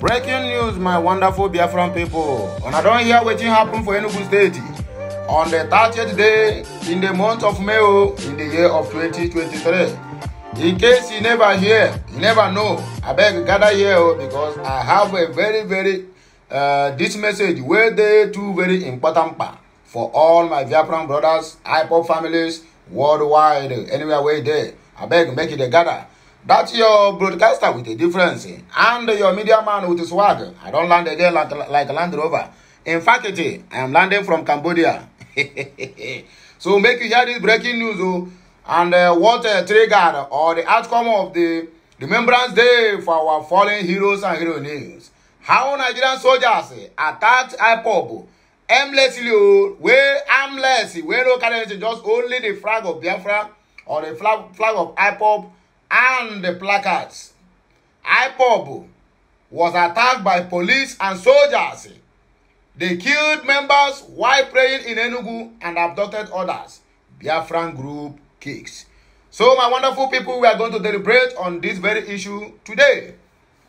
breaking news my wonderful biafran and I don't hear wetin happen for enugu state on the 30th day in the month of may oh, in the year of 2023 in case you never hear you never know I beg gather here oh, because i have a very very uh, this message wey dey two very important part for all my biafran brothers ipo families worldwide anywhere where they. I beg make it a gather That's your broadcaster with a difference eh? and your media man with a swag. I don't land again like, like Land Rover. In fact, eh, I am landing from Cambodia. so make you hear this breaking news oh, and uh, what uh, triggered or the outcome of the Remembrance Day for our fallen heroes and heroines. How Nigerian soldiers uh, attacked IPOB aimlessly, way armless, way no currency, just only the flag of Biafra or the flag, flag of IPOB and the placards. IPOB was attacked by police and soldiers. They killed members while praying in Enugu and abducted others. Biafran group kicks. So my wonderful people, we are going to deliberate on this very issue today.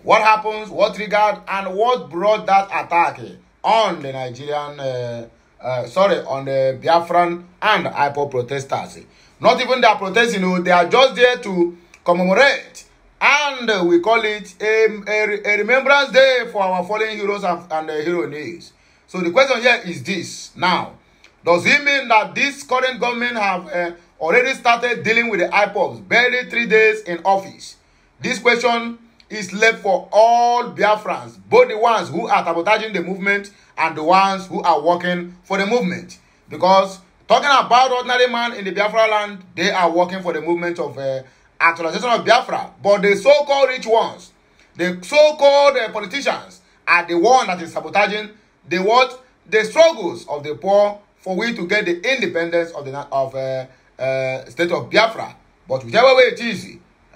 What happens, what triggered, and what brought that attack on the Nigerian, uh, uh, sorry, on the Biafran and IPO protesters. Not even they protesting, you know, they are just there to commemorate and we call it a, a, a remembrance day for our fallen heroes and, and uh, heroines. So the question here is this now. Does it mean that this current government have uh, already started dealing with the IPOBs barely three days in office? This question is left for all Biafrans, both the ones who are sabotaging the movement and the ones who are working for the movement. Because talking about ordinary man in the Biafra land, they are working for the movement of uh, actualization of Biafra. But the so-called rich ones, the so-called uh, politicians are the one that is sabotaging the what? The struggles of the poor for we to get the independence of the of uh, uh, state of Biafra. But whichever way it is,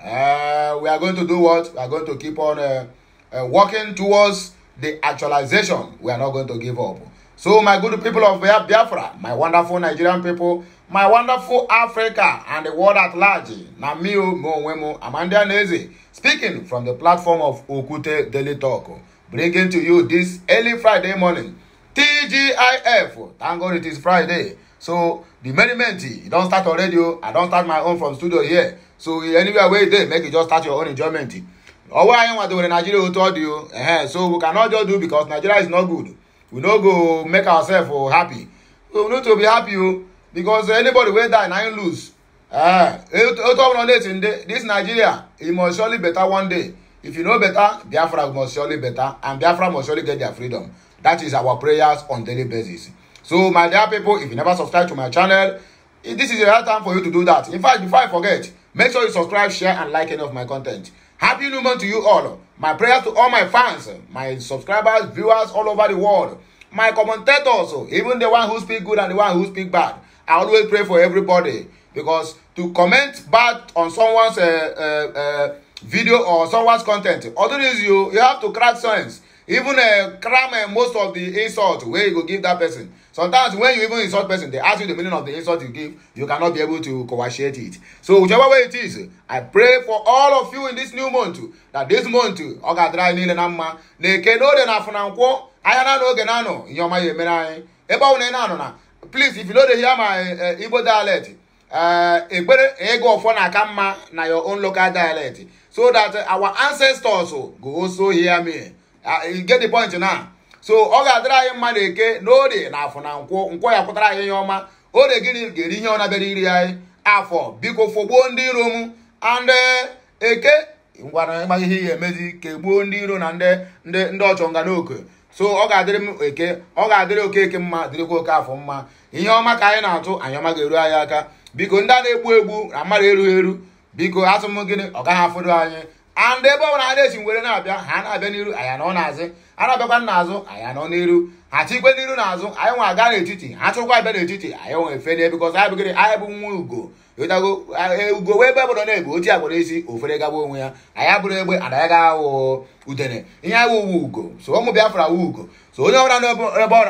uh, we are going to do what? We are going to keep on uh, uh, working towards the actualization. We are not going to give up. So my good people of Biafra, my wonderful Nigerian people, my wonderful Africa and the world at large. Namio Mwemo Amanda Neze speaking from the platform of Okute Daily Talk, bringing to you this early Friday morning. TGIF, thank God it is Friday. So the merriment, you don't start already, radio. I don't start my own from studio here. So anywhere where they make you just start your own enjoyment. Ọwọ́ ayé wọn àti òwe Nàìjíríà ó tọ́ di o. So we cannot just do because Nigeria is not good. We no go make ourselves happy. We no to be happy o because anybody wey die na him lose eh, o talk na late in day this nigeria e must surely better one day if you know better biafra must surely better and biafra must surely get their freedom that is our prayers on daily basis so my dear people if you never subscribe to my channel this is the right time for you to do that in fact before i forget make sure you subscribe share and like any of my content happy new month to you all my prayers to all my fans my subscribers viewers all over the world my commentators even the one who speak good and the one who speak bad I always pray for everybody because to comment bad on someone's uh, uh, uh video or someone's content, otherwise you, you have to crack sense. Even uh, cram uh, most of the insult where you go give that person. Sometimes when you even insult person, they ask you the meaning of the insult you give. You cannot be able to coagulate it. So whichever way it is, I pray for all of you in this new month that this month, oga dry nile na mma, na eke n'ode na afunankwọ, anya na n'oge na anọ, ihe ọma ya na please if you no dey hear my eh, igbo dialect ekpere eh, ịgụ ofo na-aka mma na your own local dialect so that eh, our ancestors oh, go also hear me ah, get the point now so ọ ga-adịrị anyị mma na eke na na afọ na nkwụ nkwụ ya kwụtara anyị ihe ọma ode gịnị ga-eri ihe ọ iri anyị afọ biko fọgbuo ndị iro m ande eke ngwara ịgba ihe ya emezi kegbuo ndị iro na ndị ndị nga n'oke so ọ ga-adịrị m eke ọ ga-adịrị okeke mma dịrịkwa oke afọ mma ihe ọma ka anyị na-atụ anyị ọma ga-eru anyị aka biko ndị a na-egbu egbu na mmadụ erughị eru biko atụm gịnị ọ gaghị afọdụ anyị and ebe ọ bụla ha na-esi were na-abịa ha na-abịa n'iru anyị anọ n'azị a na-abịakwa nna azụ anyị anọ n'iru ha chikwe n'iru n'azụ anyị nwa aga n'etiti ha chụkwa abịa n'etiti anyị nwe efe n'ebe because anyị bụgịrị anyị bụ nwa ugo ụtago e, ugo wee ebe bụrụ na-ebu oti agbụrụ isi ofere gaba onwe ya anyị abụrụ egbe ana ya awụ udene ihe awụ uwe ugo so ụmụ Biafra wu ugo so onye ọbụla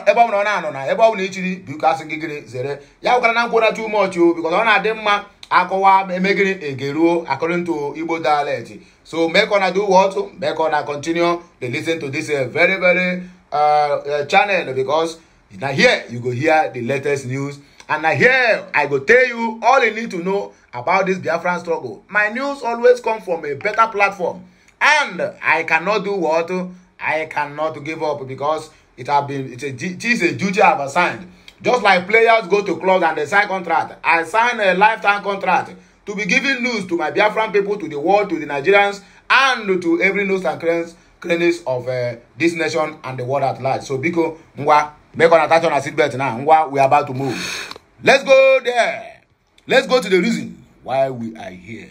ebe ọbụla ọ na-anọ na ebe ọbụla ichiri biko asị gịrị zere ya gwara na mkpụrụ too much o because ọ na-adị mma akọwa emegịrị egeruo according Igbo dialect so make una do what make na continue to listen to this uh, very very Uh, uh, channel because na here you go hear the latest news and na here i go tell you all you need to know about this biafran struggle my news always come from a better platform and i cannot do what i cannot give up because it have been it's a, it is a duty i have assigned just like players go to clubs and they sign contract i sign a lifetime contract to be giving news to my biafran people to the world to the nigerians and to every news and friends cleanliness of uh, this nation and the world at large. So Biko, ngwa, make an attention on a seatbelt now. Ngwa, we are about to move. Let's go there. Let's go to the reason why we are here.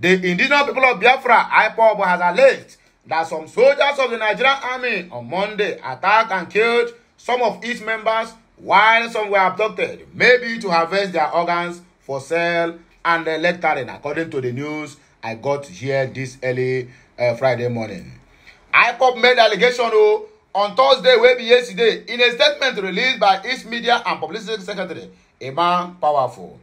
The indigenous people of Biafra, IPOB, has alleged that some soldiers of the Nigerian army on Monday attacked and killed some of its members while some were abducted, maybe to harvest their organs for sale and the lecturing, according to the news I got here this early uh, Friday morning. IPOB made allegation o oh, on Thursday wey be yesterday in a statement released by its media and publicity secretary Emma Powerful.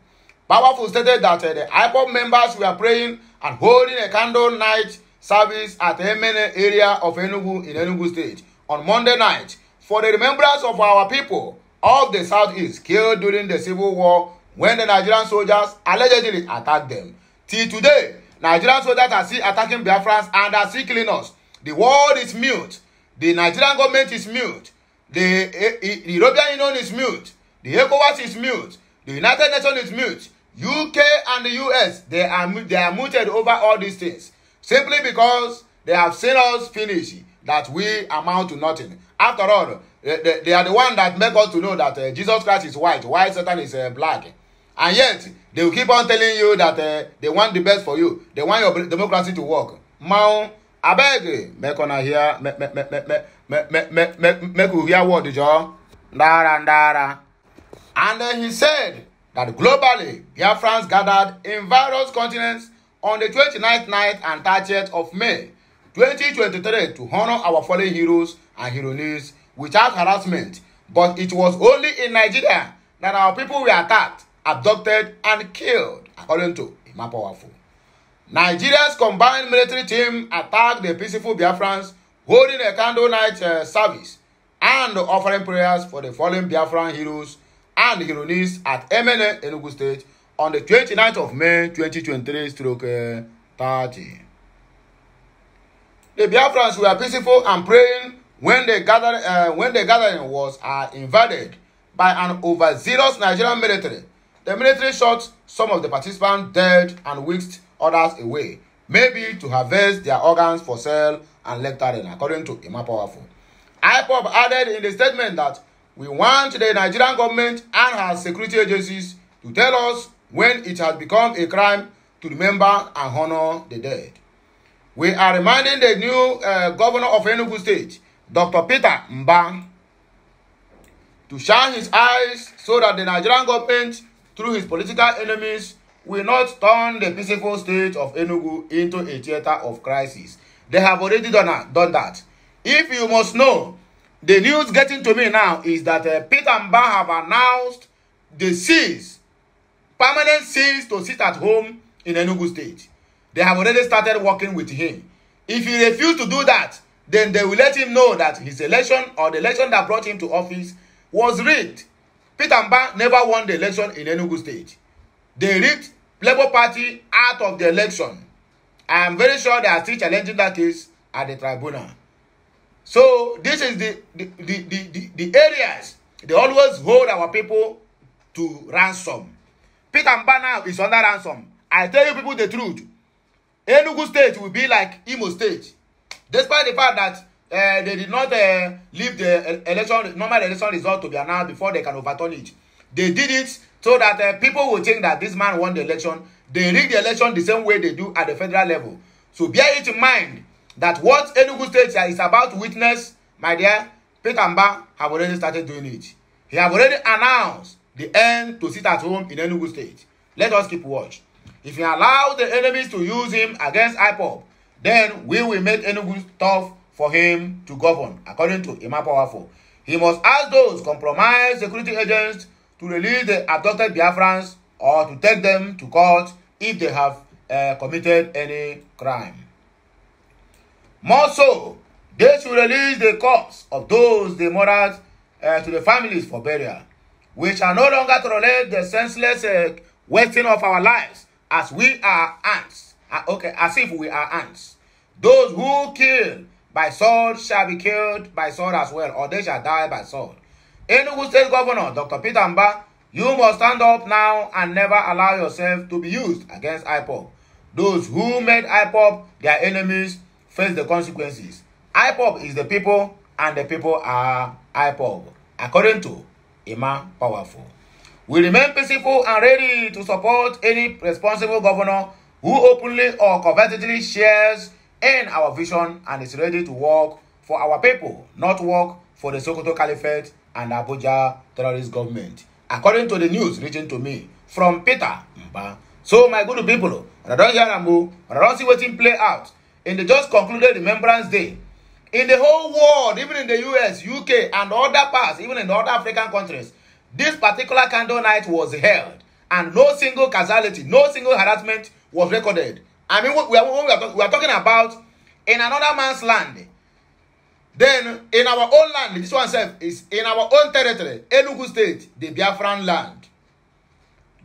Powerful stated that uh, the IPOB members were praying and holding a candle night service at Emene area of Enugu in Enugu State on Monday night for the remembrance of our people of the South East killed during the civil war when the Nigerian soldiers allegedly attacked them. Till today, Nigerian soldiers are still attacking Biafrans and are still killing us. The world is mute. The Nigerian government is mute. The, the, eh, eh, the European Union is mute. The ECOWAS is mute. The United Nations is mute. UK and the US, they are, they are muted over all these things. Simply because they have seen us finish that we amount to nothing. After all, they, they, are the one that make us to know that uh, Jesus Christ is white, while Satan is uh, black. And yet, they will keep on telling you that uh, they want the best for you they want your democracy to work mount abeg make una hear make make make make make make make make make we hear word jo ndara ndara and then he said that globally biafrans gathered in various continents on the 29th night and 30th of may 2023 to honor our fallen heroes and heroines without harassment but it was only in nigeria that our people were attacked abducted, and killed, according to Imapowafu. Nigeria's combined military team attacked the peaceful Biafrans holding a candle night uh, service and offering prayers for the fallen Biafran heroes and heroines at Emene, Enugu State on the 29th of May 2023 stroke uh, 30. The Biafrans were peaceful and praying when the, gather, uh, when the gathering was uh, invaded by an overzealous Nigerian military The military shot some of the participants dead and whisked others away, maybe to harvest their organs for sale and lecturing, according to Emma Powerful. IPOB added in the statement that we want the Nigerian government and her security agencies to tell us when it has become a crime to remember and honor the dead. We are reminding the new uh, governor of Enugu State, Dr. Peter Mbang, to shine his eyes so that the Nigerian government through his political enemies will not turn the peaceful state of Enugu into a theater of crisis. They have already done, that, done that. If you must know, the news getting to me now is that uh, Peter Mba have announced the cease, permanent cease to sit at home in Enugu state. They have already started working with him. If he refuses to do that, then they will let him know that his election or the election that brought him to office was rigged Peter Mba never won the election in Enugu State. They ripped Labour Party out of the election. I am very sure they are still challenging that case at the tribunal. So this is the the, the, the, the, the areas they always hold our people to ransom. Peter Mba now is under ransom. I tell you people the truth. Enugu State will be like Imo State. Despite the fact that uh, they did not uh, leave the eh, election normal election result to be announced before they can overturn it they did it so that uh, people will think that this man won the election they rig the election the same way they do at the federal level so bear it in mind that what enugu state is about to witness my dear peter mba have already started doing it he have already announced the end to sit at home in enugu state let us keep watch if he allow the enemies to use him against ipob then we will make enugu tough for him to govern, according to Imam Powerful. He must ask those compromised security agents to release the abducted Biafrans or to take them to court if they have uh, committed any crime. More so, they should release the corpse of those they murdered uh, to the families for burial, which are no longer tolerate the senseless uh, wasting of our lives as we are ants. Uh, okay, as if we are ants. Those who kill by sword shall be killed by sword as well, or they shall die by sword. Enugu State Governor Dr. Peter Mba, you must stand up now and never allow yourself to be used against IPOP. Those who made IPOP their enemies face the consequences. IPOP is the people and the people are IPOP, according to Emma Powerful. We remain peaceful and ready to support any responsible governor who openly or covertly shares and our vision and is ready to work for our people, not work for the Sokoto Caliphate and Abuja terrorist government. According to the news written to me from Peter Mba. So, my good people, I don't hear Rambo, I don't see waiting play out in the just concluded Remembrance Day. In the whole world, even in the US, UK, and other parts, even in other African countries, this particular candle night was held. And no single casualty, no single harassment was recorded I mean, what we are, what we, are, we are talking about in another man's land. Then, in our own land, this one says, is in our own territory, Enugu State, the Biafran land.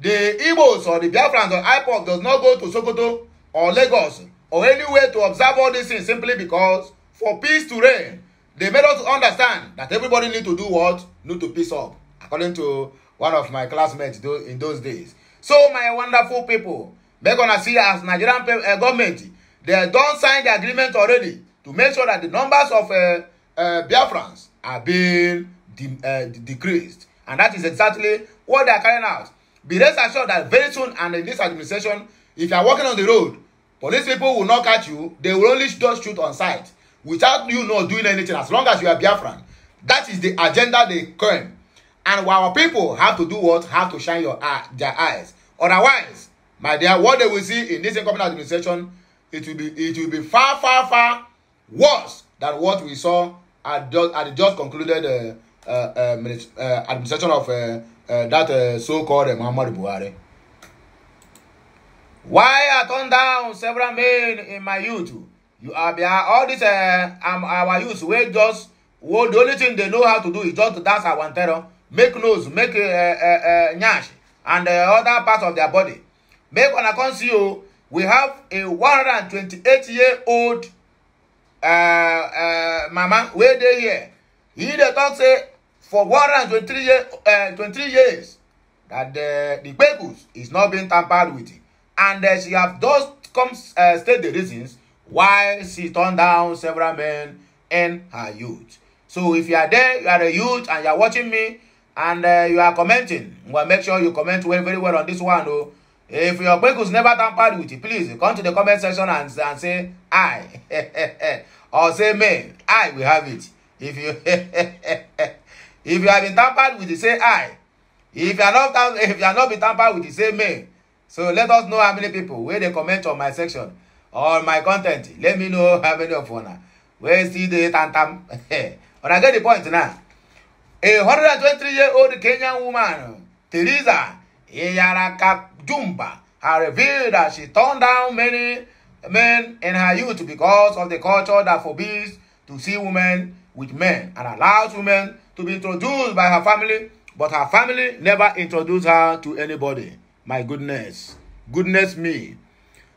The Igbos or the Biafran or IPOC does not go to Sokoto or Lagos or anywhere to observe all these things simply because for peace to reign, they made us understand that everybody need to do what? Need to peace up, according to one of my classmates in those days. So, my wonderful people, make una see as nigerian uh, government dem don sign the agreement already to make sure that the numbers of uh, uh, biafrans are being de uh, decreased and that is exactly what they are carrying out be rest assured that very soon and in this administration if you are walking on the road police people will not catch you they will only just shoot on sight without you not doing anything as long as you are biafran that is the agenda they claim and our people have to do what have to shine your eye their eyes otherwise My dear, what they will see in this incoming administration, it will be it will be far, far, far worse than what we saw at, just, at the just concluded uh, uh, uh, uh, administration of uh, uh, that uh, so-called uh, Muhammad Buhari. Why I turned down several men in my youth? You are behind all this uh, um, our youth wey just well, the only thing they know how to do is just to dance awantero, make nose, make uh, uh, uh, nyash, and uh, other parts of their body make una come see o we have a 128 year old uh, uh, mama wey dey here he dey talk say for 123 year, uh, 23 years that the, the papers is not being tampered with and uh, she have just come uh, state the reasons why she turned down several men in her youth so if you are there you are a youth and you are watching me and uh, you are commenting well make sure you comment well very well on this one o. Oh, If your was never tampered with it, please come to the comment section and, and say, I. or say, me. I will have it. If you if you have been tampered with it, say, I. If you are not, if you are not been tampered with it, say, me. So let us know how many people where they comment on my section or my content. Let me know how many of you where see the tantam. but I get the point now. A 123-year-old Kenyan woman, Teresa, Iyaraka Jumba are revealed that she turned down many men in her youth because of the culture that forbids to see women with men and allows women to be introduced by her family, but her family never introduced her to anybody. My goodness. Goodness me.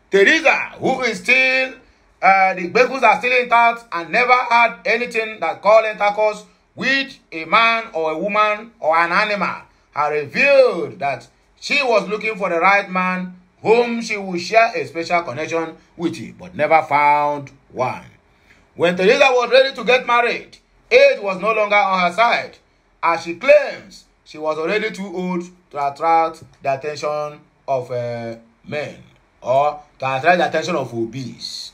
Teresa, who is still, uh, the Bekus are still intact and never had anything that called intercourse with a man or a woman or an animal, has revealed that She was looking for the right man whom she would share a special connection with, him, but never found one. When Teresa was ready to get married, age was no longer on her side, as she claims she was already too old to attract the attention of uh, men or to attract the attention of obese.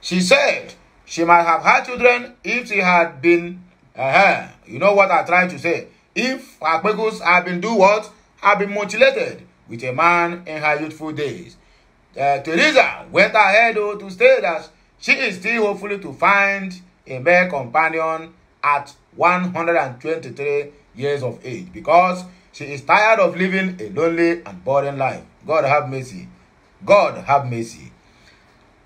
She said she might have had children if she had been, uh -huh, you know what I'm trying to say, if her had been do what? have been mutilated with a man in her youthful days. Uh, Teresa went ahead oh, to state that she is still hopefully to find a male companion at 123 years of age because she is tired of living a lonely and boring life. God have mercy. God have mercy.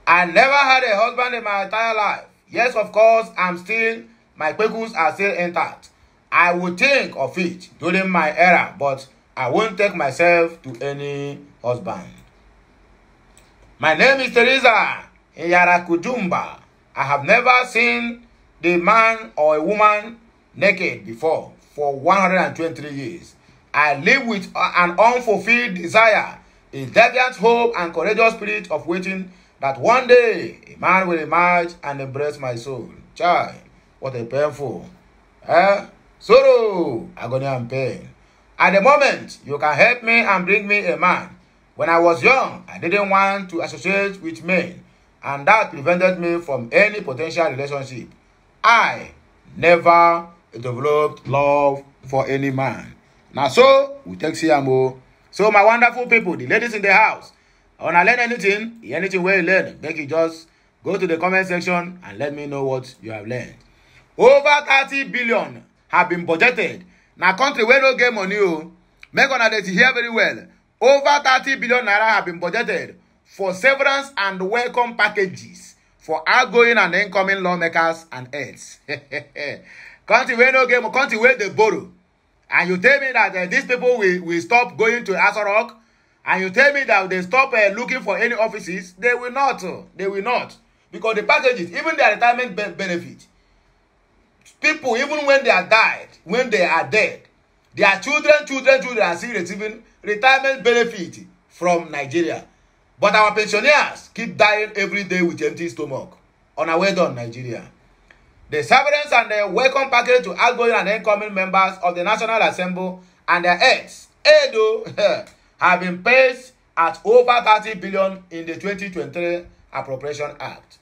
I never had a husband in my entire life. Yes, of course, I'm still, my pecules are still intact. I would think of it during my era, but I won't take myself to any husband. My name is Teresa Yarakujumba. I have never seen the man or a woman naked before for 123 years. I live with an unfulfilled desire, a deviant hope, and courageous spirit of waiting that one day a man will emerge and embrace my soul. Child, what a painful. Eh? Sorrow, agony, and pain. At the moment, you can help me and bring me a man. When I was young, I didn't want to associate with men, and that prevented me from any potential relationship. I never developed love for any man. Now, so we take CMO. So, my wonderful people, the ladies in the house, wanna learn anything, anything where you learn, make you just go to the comment section and let me know what you have learned. Over 30 billion have been budgeted na country wey no get money o make una dey hear very well over thirty billion naira have been budgeted for severance and welcome packages for outgoing and incoming lawmakers and heads country wey no get country wey dey borrow and you tell me that uh, these people will, will stop going to Aso and you tell me that they stop uh, looking for any offices, they will not. Uh, they will not. Because the packages, even their retirement be benefit, People, even when they are died, when they are dead, their children, children, children are still receiving retirement benefit from Nigeria. But our pensioners keep dying every day with empty stomach. On our way down, Nigeria. The severance and the welcome package to outgoing and incoming members of the National Assembly and their heads, Edo, oh, have been paid at over thirty billion in the 2023 Appropriation Act.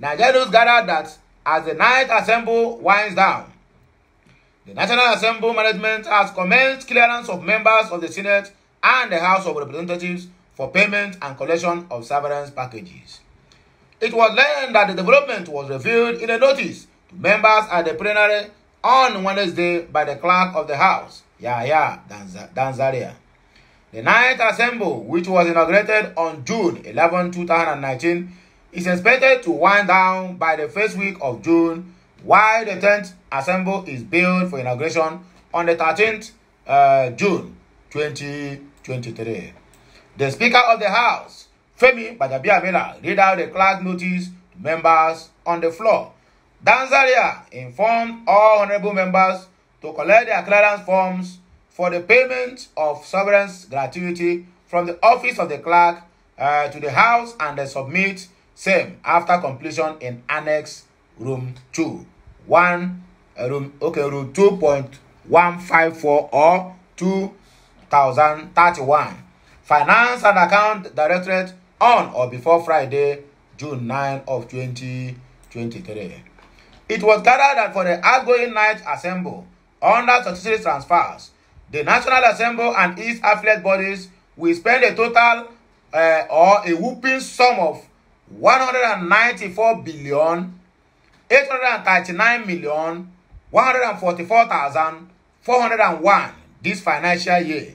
Nigerians gathered that as the night assembly winds down. The National Assembly management has commenced clearance of members of the Senate and the House of Representatives for payment and collection of severance packages. It was learned that the development was revealed in a notice to members at the plenary on Wednesday by the clerk of the House, Yahya Danzaria. The Ninth Assembly, which was inaugurated on June 11, 2019, is expected to wind down by the first week of June, while the 10th Assembly is billed for inauguration on the 13th uh, June 2023. The Speaker of the House, Femi Badabiamila, read out the clerk notice to members on the floor. Danzaria informed all honorable members to collect their clearance forms for the payment of sovereign's gratuity from the office of the clerk uh, to the House and submit Same after completion in annex room two one uh, room okay room two point one five four or two thousand thirty one Finance and Account Directorate on or before Friday, June nine of twenty twenty three. It was gathered that for the outgoing night assembly under statutory transfers, the National Assembly and its affiliate bodies will spend a total uh, or a whooping sum of one hundred and ninety-four billion eight hundred and thirty-nine million one hundred and forty-four thousand four hundred and one this financial year.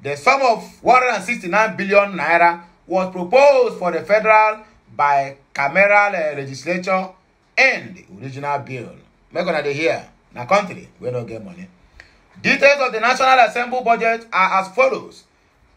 The sum of 169 billion naira was proposed for the federal bicameral uh, legislature and original bill. Make una dey hear na country we no get money. Details of the National Assembly budget are as follows.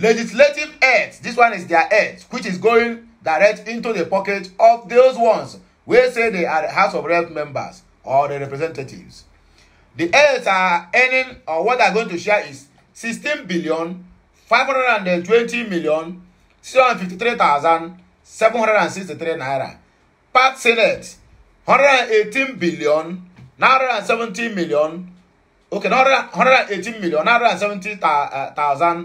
Legislative aids, this one is their aids, which is going direct into the pocket of those ones we say they are the House of Rep members or the representatives. The aids are earning, or what they're going to share is 16 billion, 520 million, 653,763 naira. Part Senate, 118 billion, 970 million, okay, 118 million, 970,000 uh,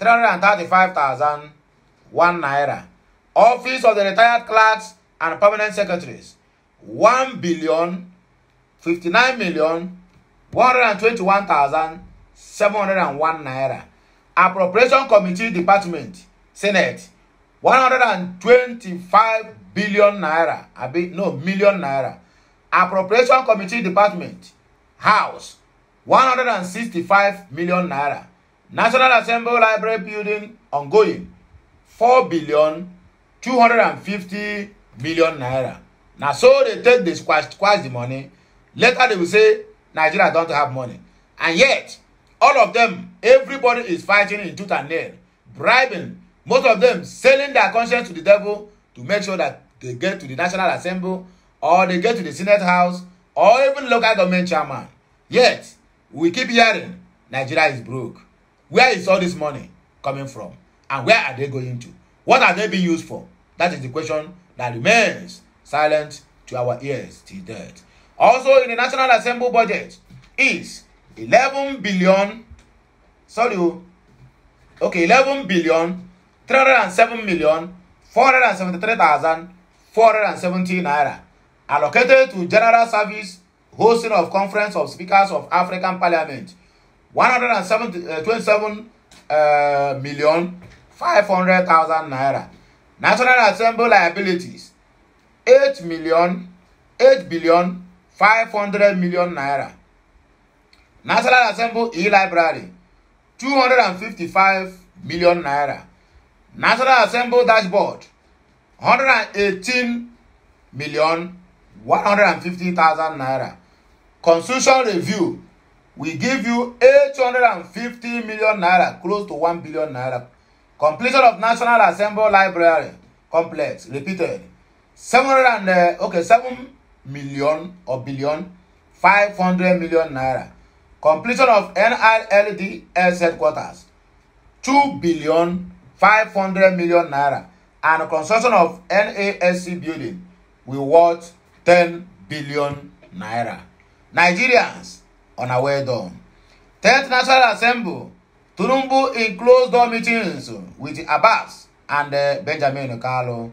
335,001 naira. Office of the retired clerks and permanent secretaries, 1 billion 59 million 121,701 naira. Appropriation Committee Department, Senate, 125 billion naira. I no, million naira. Appropriation Committee Department, House, 165 million naira. National Assembly Library building ongoing four billion two hundred and fifty million naira. Na so they take the squash, squash the money. Later they will say Nigeria don't have money. And yet, all of them, everybody is fighting in tooth and nail, bribing, most of them selling their conscience to the devil to make sure that they get to the National Assembly or they get to the Senate House or even local government chairman. Yet, we keep hearing Nigeria is broke. Where is all this money coming from? And where are they going to? What are they being used for? That is the question that remains silent to our ears till death. Also, in the National Assembly budget is eleven billion, sorry, oh, okay, eleven billion, three hundred seven million, four four hundred hundred seventy three thousand seventy naira allocated to general service hosting of conference of speakers of African parliament one hundred and seventy uh, twenty-seven uh, million five hundred thousand naira national assembly liabilities eight million eight billion five hundred million naira national assembly e-library two hundred and fifty-five million naira national assembly dashboard hundred and eighteen million one hundred and fifty thousand naira constitution review we give you eight hundred and fifty million naira, close to one billion naira. Completion of National Assembly Library complex, repeated. Seven hundred and, uh, okay, seven million or billion, Five hundred million naira. Completion of NILDS headquarters, Two billion, five hundred million naira. And construction of NASC building, will worth ten billion naira. Nigerians, on a well done. 10th National Assembly, Turumbu in closed-door meetings with Abbas and uh, Benjamin Carlo.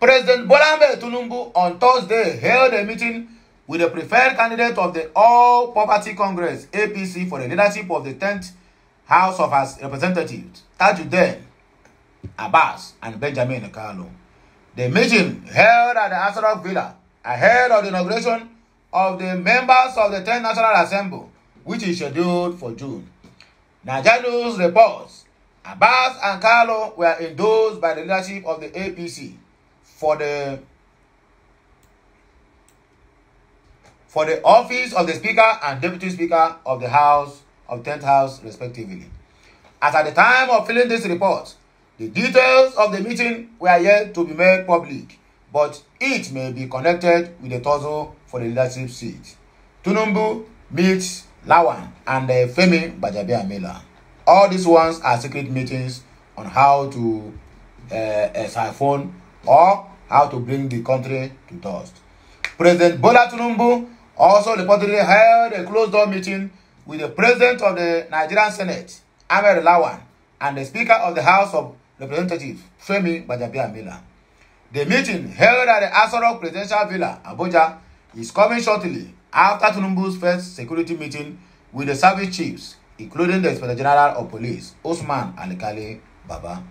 President Bolambe Tunumbu on Thursday held a meeting with the preferred candidate of the All Poverty Congress, APC, for the leadership of the 10th House of Representatives, Tajuddin Abbas and Benjamin Carlo. The meeting held at the Asarok Villa ahead of the inauguration of the members of the ten National Assembly, which is scheduled for June. Najalu's reports, Abbas and Carlo were endorsed by the leadership of the APC for the for the office of the Speaker and Deputy Speaker of the House of Ten th House, respectively. As at the time of filling this report, the details of the meeting were yet to be made public, but it may be connected with the tussle for the leadership seat. Tunumbu meets Lawan and uh, Femi Mela. All these ones are secret meetings on how to uh, uh, siphon or how to bring the country to dust. President Bola Tunumbu also reportedly held a closed-door meeting with the President of the Nigerian Senate, Ahmed Lawan, and the Speaker of the House of Representatives, Femi Bajabia Mela. The meeting held at the Asoro Presidential Villa, Abuja, is coming shortly after Tinubu's first security meeting with the service chiefs, including the Inspector General of Police, Osman Alikale Baba.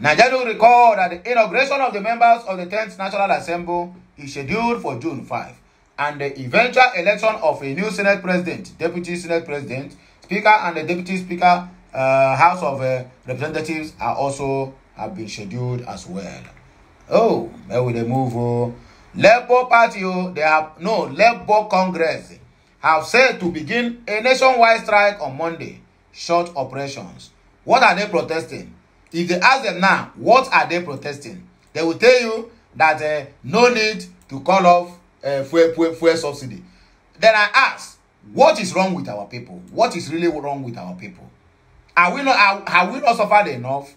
Nigeria will recall that the inauguration of the members of the tenth National Assembly is scheduled for June 5, and the eventual election of a new Senate President, Deputy Senate President, Speaker, and the Deputy Speaker uh, House of uh, Representatives are also have been scheduled as well. Oh, where will they move? Oh? Labour Party, oh, they have no Labour Congress have said to begin a nationwide strike on Monday. Short operations. What are they protesting? If they ask them now, what are they protesting? They will tell you that uh, no need to call off uh, fuel, fuel, fuel subsidy. Then I ask, what is wrong with our people? What is really wrong with our people? Are we not are, have we not suffered enough?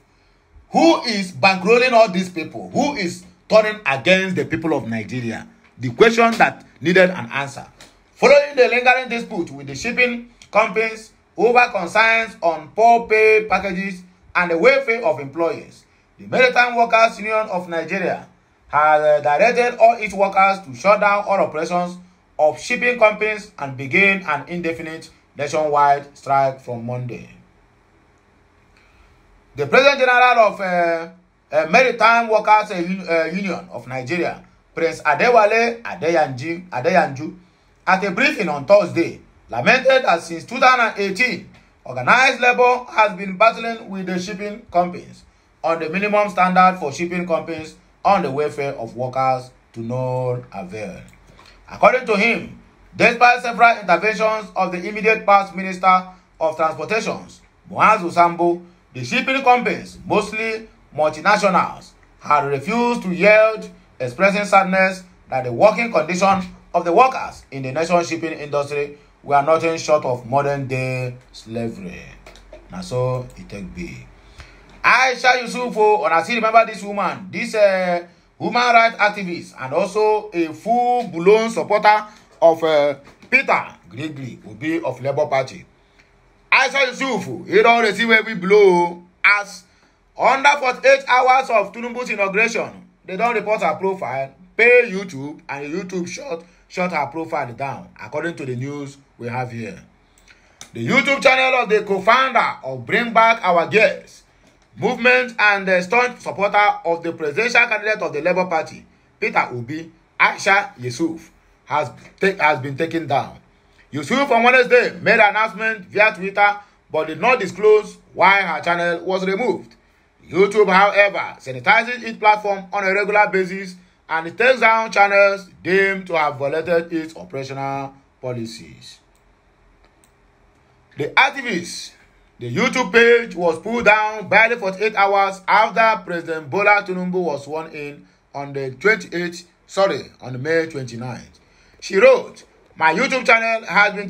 Who is bankrolling all these people? Who is turning against the people of Nigeria? The question that needed an answer. Following the lingering dispute with the shipping companies over concerns on poor pay packages and the welfare of employees, the Maritime Workers Union of Nigeria has uh, directed all its workers to shut down all operations of shipping companies and begin an indefinite nationwide strike from Monday. The President General of uh, uh, Maritime Workers uh, Union of Nigeria, Prince Adewale Adeyanju Adeyanju, at a briefing on Thursday, lamented that since 2018, organized labour has been battling with the shipping companies on the minimum standard for shipping companies on the welfare of workers to no avail. According to him, despite several interventions of the immediate past Minister of Transportations, Moaz Usambo, the shipping companies, mostly multinationals had refused to yield, expressing sadness that the working conditions of the workers in the nation's shipping industry were nothing short of modern-day slavery. Na so e take be. Aisha Yusufu, una still remember this woman, this uh, human rights activist and also a full-blown supporter of uh, Peter Gregory Obi of Labour Party. Aisha Yusufu, he don receive every blow as under 48 hours of tinubu's inauguration they don report her profile pay youtube and youtube shut shut her profile down according to the news we have here the youtube channel of the co-founder of bring back our girls movement and the staunch supporter of the presidential candidate of the labour party peter obi aisha yusuf has take has been taken down yusuf on wednesday made an announcement via twitter but did not disclose why her channel was removed YouTube, however, sanitizes its platform on a regular basis and takes down channels deemed to have violated its operational policies. The activists, the YouTube page was pulled down barely 48 hours after President Bola Tinubu was sworn in on the 28th, sorry, on May 29th. She wrote, My YouTube channel has been